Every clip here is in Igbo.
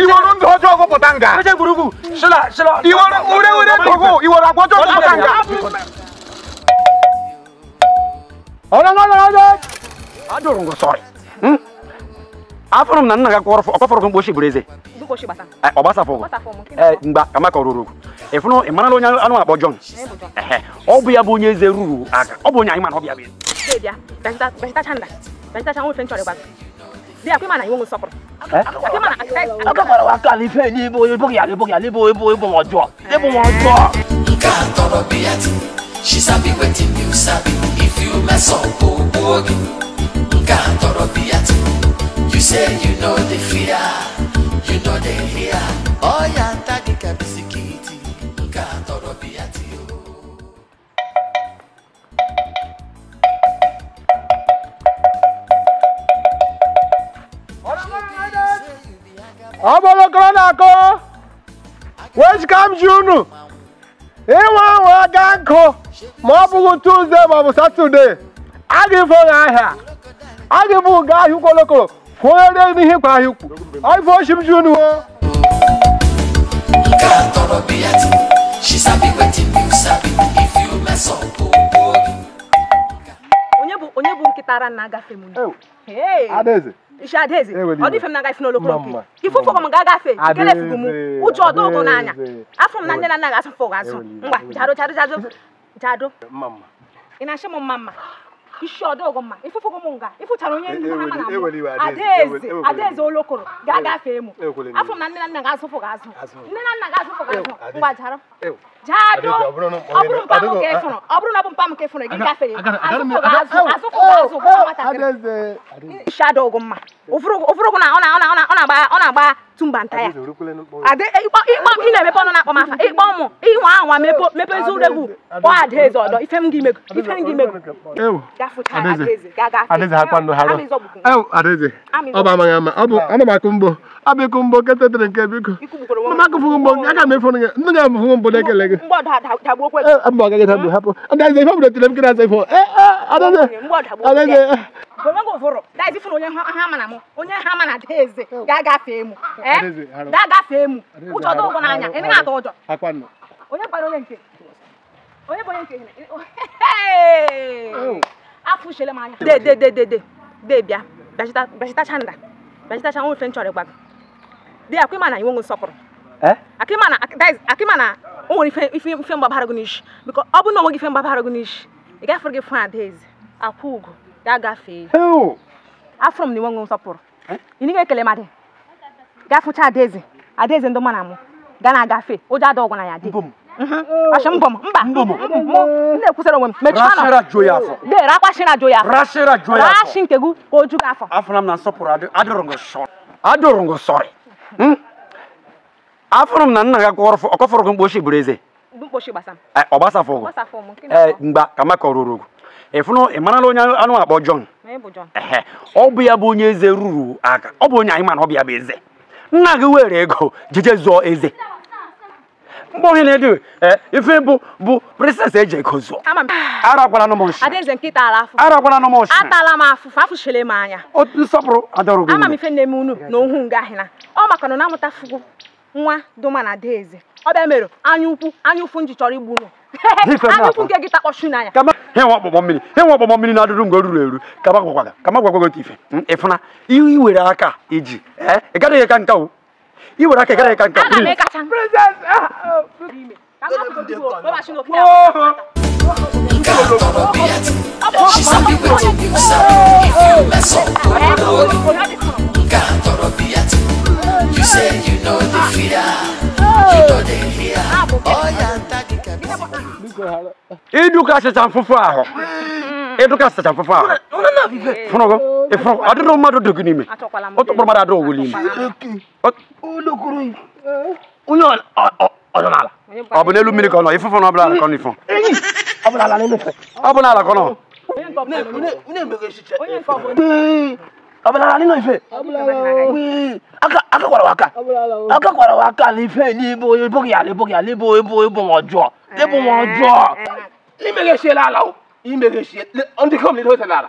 iwọ ló ń tọ́jú ọkọ̀ pọ̀tàǹgà. ó jẹ́ burúkú ṣọlá ṣọlá. ìwọ orí orí tọ́kọ̀ ìwọ ló àgbọ̀jọ́ ọkọ̀ pọ̀tàǹgà. ọ̀rọ̀ lọ́dọ̀ lọ́dọ̀ adùrùn kò sọ̀rọ̀ afurum na nna ga kọrọ ọkọ fọrọ mgbe oshi bureze ọgbasa fọgụ mgba amaka ruru ịfụnụ ịmara na onye anụ akpọ jọn ọ bụ ya bụ onye eze ruru aka ọ bụ onye anyị mana ọ bịa bịa dia akwai mana yiwu sopro eh? akwai mana akwai mana wa if you mess up bo bo ogi nka toro you say you know the fear you know the fear oh yeah, ya tagi kabisiki ọbụlụkọrọ na-akọ wechkam ji unu inwe nwe aka nkụ ma ọ bụghị tuzdee ma ọ bụ satọdee a ga-efe onye ahịa a ga-ebu ga ahịa ụkwolokoro fụnyere n'ihe kwa ahịa ukwu ọife ochi m ji unu o She sabi wetin you sabi if you mess up. Oh. kịtara na agafe m isi adaeze ọ m na-agafe n'olokolo nke m ga-agafe kelefugo m ụjọ ọdọ n'anya afọ m na nne na nna ga-asụ azụ ngwa jado jado jado jado ị na-achọ m mma mma isi ọdọgwụ mma ifufugo m nga ịfụchara onye ndu ha mana adaeze adaeze olokoro ga-agafe emu afọ m na nne na nna ga-azụfụ ga-azụ nne na nna ga-azụfụ ga-azụ ngwa jara jado ọ bụrụ mpa m ka ịfụrụ ọ bụrụ na ọ bụ mpa m ka ịfụrụ gị azụfụ ga-azụ azụfụ ga-azụ nwatakịrị mma na ọ na-agba otu nta ya ị na-emepe ọnụ na afa ịkpọ ịnwa anwa mepe eziregwu kpọ adaeze ọdọ ife m ga ana akụ abịkụ mgbo nke tetere nke biko mama akụfụghị mgbo nke aka m efu ndị na-ekele gị eh, mba hapụ ife m onye onye onye onye onye onye onye onye onye di ya ma na inwe nsọpụrụ akịma na o nwere ife mgbabara gị n'isi biko ọ na ife mgbabara gị n'isi ị gị ugo ga agafee afụrụ m na inwe nsọpụrụ eh? ị nịghị ekele madị gafụcha adaeze adaeze ndị mma mụ ga na-agafe ụjọ ada ọgwụ na ya dị Ashim mba. Nne onwe m. joya afọ. Rashi nke Afọ Hmm? afụrụ m na nna gị akọfọrọ gị bụrụ eze e, ọ gbasafụ ụgụ e, ka maka kamaka ruru ịfụnụ ị marala onye anụ akpọ jọn ọ bụ ya bụ onye eze ruru aka ọ bụ onye anyị mana ọ bụ ya bụ eze nna gị were ego jeje zụọ eze mgbe ohi na-edu ife bụ bụ e eji ego zụọ arakwana anụ m atala m afụfụ afụchile m anya nsọpụrụ adọrọ ama m ife nne m unu na ohu nga ọ maka na na-amụta fugu nwa doma na deeze ọ bịa mere anya ukwu anya ụfụ nji chọrọ igbu ukwu nke gị takpọchu na ya. ọkpọkpọ mmiri mmiri na-adụrụ mgbe ruru eru ka ma gwagwaga ka ma were aka iji gaghị ka yi wura che kare kanka ana ah, mai kacan princess ba shi no kina You say you know the fear, you know the fear. Oh, yeah, daddy can be. Educa se tan fufu aho. Educa se tan fufu aho. Funogo. E a dɔw ma dɔ do nin me. o tɔgɔ ma dɔ o wuli mɛ. o lokuru in o y'o ọdún ala ọbẹ n'elu mmiri kọnọ ifufu na ọbụla ala kọnọ ifọ ọbụla ala n'elu ọbụla ala kọnọ. ọbụla ala n'elu ife aka kwara waka aka kwara waka n'ife n'ibo ebo ya ebo ya ebo ebo ebo ma ọjọọ ebo ma ọjọọ imeghe sie ala o imeghe sie ndị kom n'ihe o tere ala.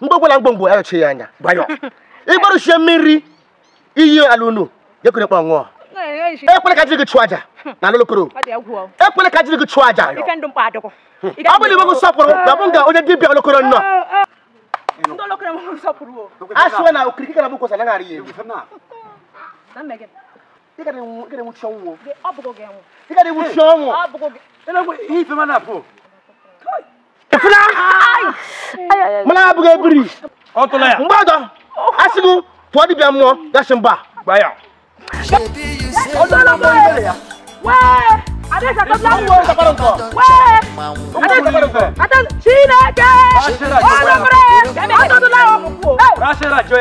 mgbe ọbụla mgbomgbo ayọchi ya anya gbanyọ ịgbarụchie mmiri iyi ala unu gekere kpa ekwele ka jiri gị chụọ aja na alụlokoro ekwele ka jiri gị chụọ aja hmm. ọ bụla bụ nga onye dibịa olokoro nnọọ mana buga biri ọtụla ya mgbe ọdọ asị gị pụọ dibịa mmụọ gasi mba gba ya ọdọla mgbe ọdọla ya wee adịsa tọbla mmụọ wee adịsa chineke ọdọbere ọdọdụla ọkụkụ chineke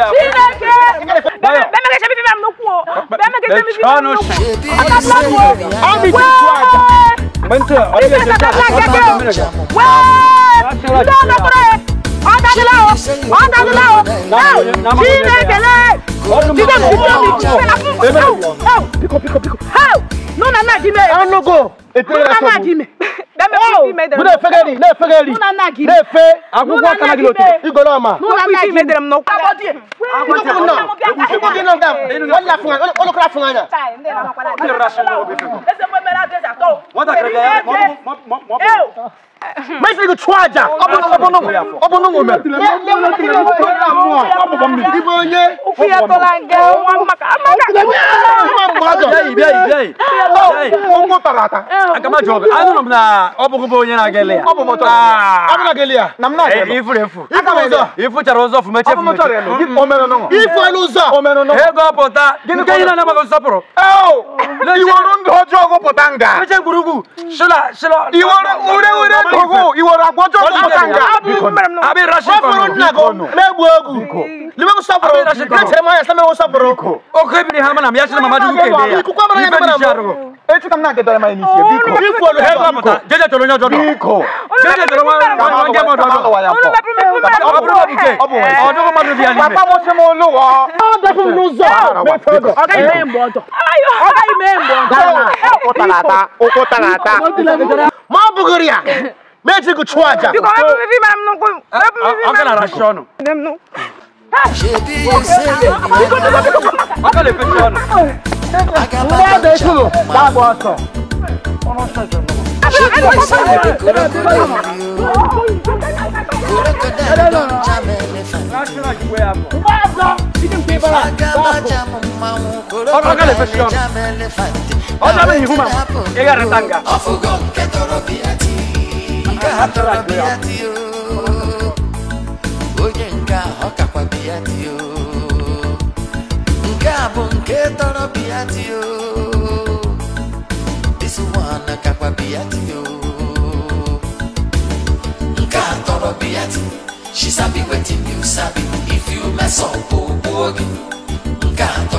bẹẹmẹkẹ sẹbi fífi àmì kú o bẹẹmẹkẹ sẹbi fífi àmì kú o ọdọdụla mmụọ wee adịsa tọbla mmụọ wee ndọnọkọrọ ye ọ dadila o ọ dadila o aw Chinekele dibem dibem dibela aw aw piko piko piko aw n'o nana dimi ye an nogo n'o nana dimi dɛmɛ kun ti mɛ dɛrɛmɛ. ne ye fɛgɛ di ne ye fɛgɛ di ne ye fɛ a ko k'a kana gilo ten i gɔlɔ ma. n'u nana ji mɛ dɛrɛmɛ nɔ. a bɔ di yen. a ko ti mun na i ko di n'o da wali la fanga olu kura fanga na. ne yɛrɛ la sɛnɛ o bɛ fɛ. ɛsɛ ko mɛ n'a dɛsɛ a tɔ. mɔta kɛrɛfɛ mɔ mɔ mɔ. Make me try aja. Obo no obo no obo no woman. Ibo ye. Ofi atolange. Amaka amaka. Yai yai yai. Ongo tarata. Akama job. Anu na obo kubo onye na gele ya. Obo moto. Abi na gele ya. Nam na gele. Ifu refu. Akama zo. Ifu charo zo fu meche fu meche. Omeno no. Ifu elu zo. Omeno no. Ego pota. Gini ko ina na ma zo poro. Oh. Iwo ndo jogo potanga. Meche gurugu. Shila shila. Iwo ure ure ogo iwara gbojo ko kanga abi rashi ko furu na go me gbogu libe ko sabro ke chema ya sama ko sabro o ko bi ha mana ya chema ma du ke ya ku kwa mana ya mana e tu kam na ke dole ma ni se biko biko lo he ba mata jeje tolo nyo jodo biko jeje tolo ma ma nge mo dodo o lo ba pro me o pro bi ke o do ko ma do bi ani papa mo se mo lo wa o da fun nu zo me fodo o kai me mbo do ayo o kai me mbo do o ko talata o ko talata buguria mechi kuchwaja biko wewe vipi mara mnoko wewe vipi mara rashono nemno akale pechano Nada isso, dá bosta. Olha a minha irmã, é garantanga. nke hapụrụ abịa dị o onye nke a ọ kakwa bịa dị o nke a bụ nke tọrọ bịa dị a tọrọ bịa she sabi wetin you sabi if you mess up oh gị nke a